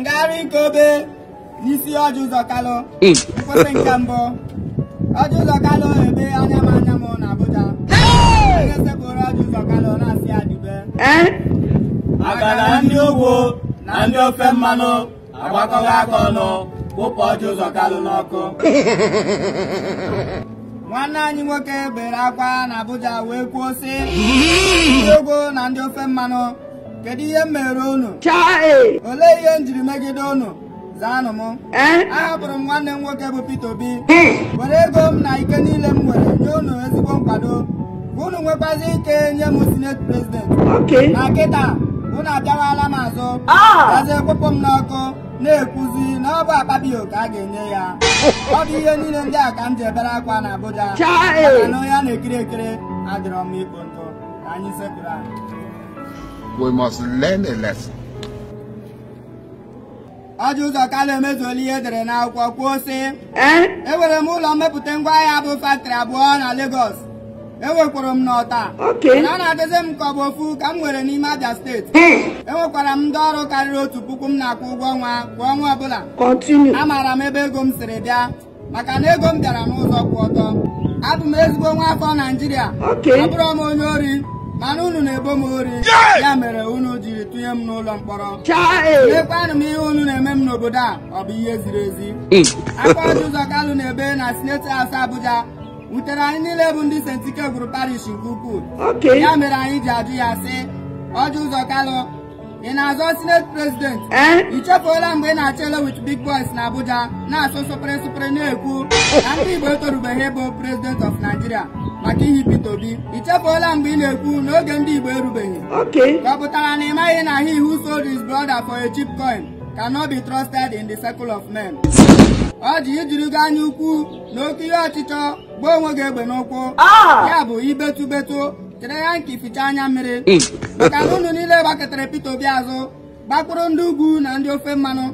ngagharị ike obe n'isi ọjụ ụzọ kalụ mkpụsị nke mbụ ọjụ ụzọ kalụ ebe anya m anya m na Abuja ga-esepụrụ ọjụ ụzọ kalụ na-asị ya dube agara ndị ugwu na ndị ofe mmanụ agbakọghị aka ọnụ wụpụ ọjụ ụzọ kalụ n'ọkụ nwanne anyị nwoke bere akwa na Abuja wee kwuo sị ndị ugwu na ndị ofe mmanụ kedu ihe m mere unu olee ihe m jiri megide unu zaanụ m e? ahapụrụ m nwanne m nwoke bụ Peter Obi were ego m na ike niile m nwere nye unu ezigbo nkwado unu nwekwazi ike nye m sinet prezidenti na kịta unu abịawala m azụ gazie kpụpụ m n'ọkụ na-ekwuzi na ọ bụ akpabio ka a ga-enye ya ọ bụ ihe niile ndị a ka m ji ebere akwa na Abuja maka na onye a na-ekiri ekiri adịrọ m ikpo ntụ ka anyị sepụrụ we must learn a lesson. Ajọ ụzọ ka na-emezuola ihe edere n'akwụkwọ kwuo si enwere m ụlọ mmepụta ngwaahịa bụ faktịrị abụọ na Lagos enwekwara m n'ọta a na-adịzi m ka ọ bụ ofu ka m nwere n'ime abịa steeti enwekwara e m ndị ọrụ karịrị otu puku m na-akwụ ụgwọ ọnwa kwa ọnwa ọbụla amaara m ebe ego m siri bịa maka na ego m bịara n'ụzọ kwụ ọtọ abụ m ezigbo nwa afọ Naịjirịa abụrụ m onye ori mana unu na-ebo m ori ya mere unu jiri tụnye m n'ụlọ mkpọrọ mekwanụ m ihe unu na-eme m n'obodo a ọ bụ ihe ziri ezi hmm. aka ụzọ kalụ na na sineti haus abuja wutere anyị niile bụ ndị sentike gwuru parish nke ukwuu ya mere anyị ji ajụ ya sị ọjụ ụzọ kalụ ị na-azọ sineti president ị chefuola mgbe ị na-achọ ele big boys na abuja na-asụ sụpere sụpere na-ekwu na ndị igbo etorubeghị ịbụ prezident of nigeria maka ihe Peter Obi ị chefuola mgbe ị na-ekwu n'oge ndị igbo erubeghị ọ na ị maghị na he who sold his brother for a cheap coin cannot be trusted in the circle of men ọ ji gị anya ukwu na oke ihe ọchịchọ gbuo onwe gị egbe n'ụkwụ ah! ya bụ ibetụbetụ chere ya nke fichaa anya mmiri maka na ụnụ niile gbakọtara Peter Obi azụ gbakpụrụ ndị ugwu na ndị ofe mmanụ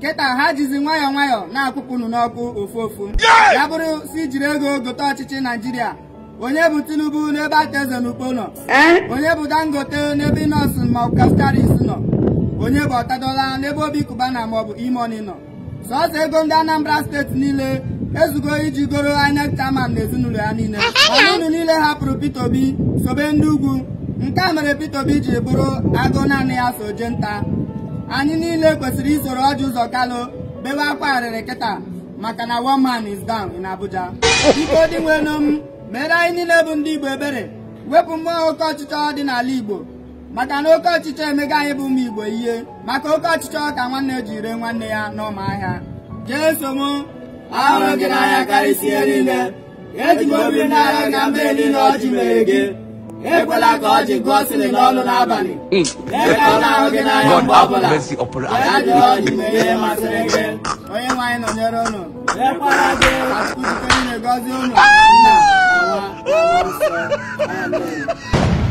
kịta ha jizi nwayọọ nwayọọ na-akpụpụ unu n'ọkụ ofu ofu ya bụrụ si jiri ego gote ọchịchị Naijiria onye bụ Tinubu n'ebe Ateze na Ukpo nọ e? onye bụ Dangote n'ebe nọọsụ maọbụ Castaris nọ onye bụ Ọtadola n'ebe Obi Kubana maọbụ Imoni nọ sọọsọ ego ndị Anambra steeti niile ezugo iji goro INEC chairman na ezinụlọ ya niile ọnụ niile hapụrụ Peter Obi sobe ndị ugwu nke a mere Peter Obi ji bụrụ agụ naanị ya so je nta anyị niile kwesịrị isoro ọjị ụzọ kalụ bewe akwa arịrị kịta maka na one man is down in Abuja biko dị nwenom m mere anyị niile bụ ndị Igbo ebere wepụ mmụọ oke ọchịchọ dị n'ala Igbo maka na oke ọchịchọ emega anyị bụ ụmụ Igbo ihe maka oke ọchịchọ ka nwanne ree nwanne ya n'ọma ahịa jee somo ahụrụ gị ya karịsịa niile eji m obi n'agha gị na mmehie niile ọjị mere gị ekwela ka e ọjị gụọ sịrị n'abalị ebe a na-ahụ gị n'anya mgbe ọbụla ya jụrụ ma gị onye nwaanyị nọnyere unu ekwela gị akụkọ niile gọzie unu ah! nna nwa